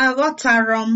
Aghọtara m